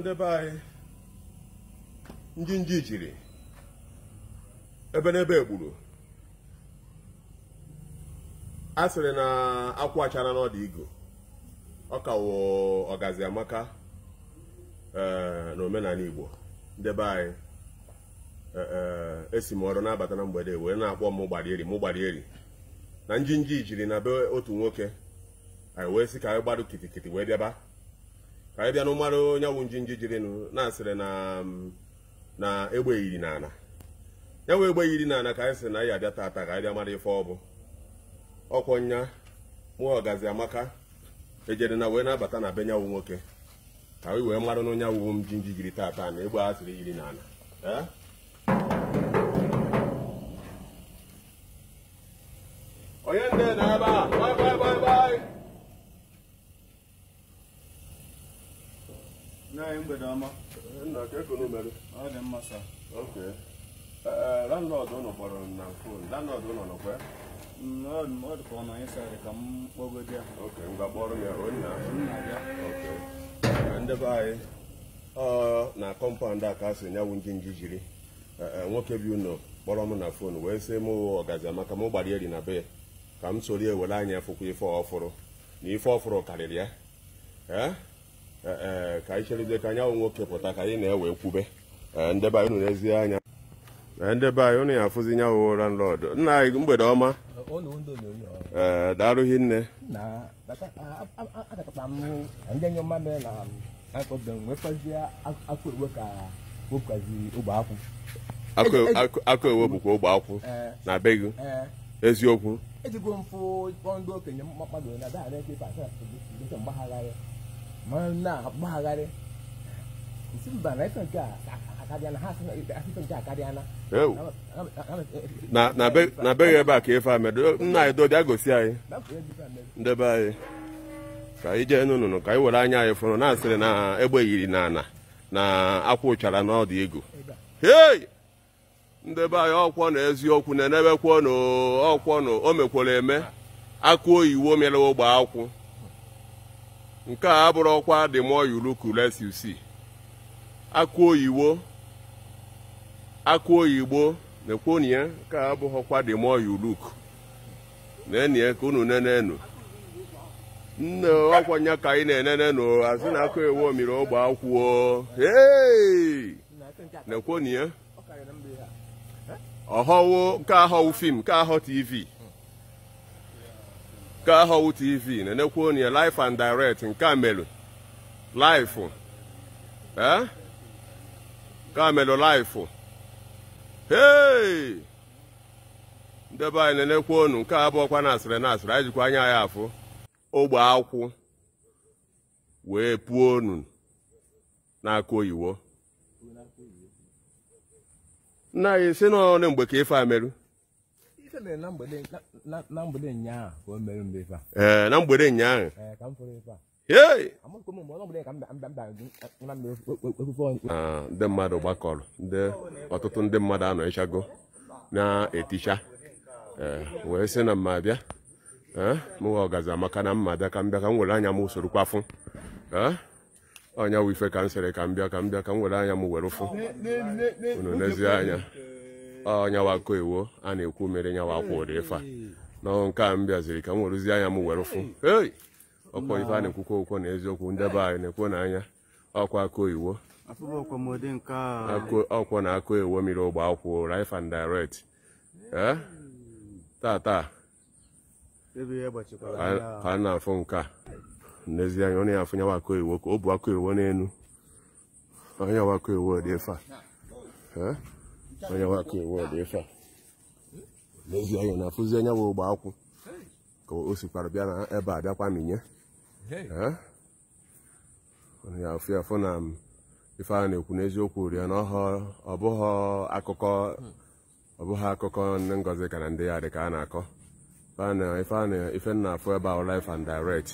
ndị be anyị ndị nji jiri ebe n'ebe a sịrị na akwa achara n'ọdụ igo ọ kawo ọgazi eh, na omenala igbo ndebe anyị eh, eh, esi m ọrụ na na mgbede wee na-akpọ m gbarieri m gbarieri na njinji jiri na be otu nwoke anyị wee sị ka anyị gbadụ kitikiti wee bịaba ka anyị bịa na onye wụ njinji jirinụ na-asịrị mm, na egbe yiri n'ala ya nwe egbe yiri n'ala ka anyị sị na anyị abịa taata ka anyị bịa mara ife ọbụ bụ ọkwọ nya ọgazi amaka ejere na wee na-abata na be nyanwụ nwoke ka anyị wee mara na onye wụ njinji jiri taata na egbe a sịrị yiri n'ala eh? onye ndị na-aba mgbede ọ dị mma ok ụnụ e, e, kpọrọ na fon landlord ụnụ mm, ka m ya ok kpọrọ onye ok e, ndị anyị ọ na kọmpaụnd a ka a sị nyanwụ njinji jiri nwoke bi ụnụ kpọrọ m na fon wee sị m ọgazi maka m gbara eri na be ka m soro ewere anya fụkwa ife na ife ọfụrụ karịrị ya Eh, eh, ka anyị cherezie ka anyanwụ nwoke pụta ka anyị na-ewe nkwube. Eh, ndebe anyị n'ezie anya ndebe anyị ụnụ ya afụzi nya wụ landlord nna anyị mgbede ọma ee darụghị nne akụ ewe bụkwa ogbe akwụ na be gị eziokwu na-agbagharị isi mba na ife nke ha nke na beghị ebe a ka ife amedo nna anyị dodi agosi anyị ndebe anyị ka anyị jee n'ụnụnụ ka anyị were anya anyị fụrụ na-asịrị na egbe yiri na na akwụ ụchara na ọdụ ego hei ndebe anyị ọkwọ na eziokwu na na o eme akụ oyiwo mere ogbe akwụ nke a abụrụ ọkwa the more you look less you see akụ oyibo akụ oyibo na-ekwonye nke a abụghị ọkwa the more you look na-enye ka unu nenenu nne ọkwanya ka anyị na-enene nụ asị na akụ ewo mmiri ogbe akwụọ na-ekwonye ọhọwo nke ahọwụ fim nke ahọ tv nke ahụ tv na-enekwa onye life and direct nke amelu life ee eh? nke amelu life hey Ndebe be anyị na-enekwa onu nke abụọkwa na asịrị na asịrị anyị anya ya afụ ogbe akwụ wee pụọ na n'aka oyiwo nna anyị si n'ọnụ mgbe ka ife ameru na mgbede ụnyaahụ na mgbede ndị mmadụ gbakọrọ ndị ọtụtụ ndị mmadụ anọ ịchago na-eticha wee sị na mma bịa mụwa ọgazi amaka na mma bịa ka m bịa ka m were anya m usoro kwafụ ọnya wife ka m sịrị ka mbịa ka m bịa ka m were anya m were ụfụ unu n'ezie anya ọnyawa ah, koewo a na-ekwu mere nyawa akwa ụdị ife a na nke a m bịaziri ka m werụzi anya m were fụ ei ọkwa ife a na-ekwukwa okwu na eziokwu ndebe anyị na-ekwu n'anya anya ọkwa koiwo ọkwọ na akụ ewo mmiri ogbe akwụ rife and direct eh? tata ka a na-afụ nke a n'ezianya ọ na-afụ nyawa akụ iwo ka o bu akụ iwo n'elu onye wakụ iwo dị ife a eh? onye nwaka ewe ụdị ife anya na afụzi onye ụgbọ akwụ ka bịa na ebe a bịakwa minye ya ya na ife na-ekwu n'eziokwu ri na akụkọ ọ akụkọ ndị ngozi ka na ya dị ka a na-akọ ife na-afụ ebe a life and direct